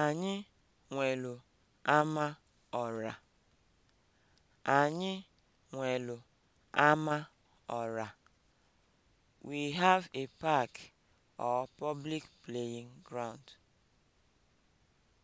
Anyị nwelu ama ọra. Anyị nwelu ama ọra. We have a park or public playing ground.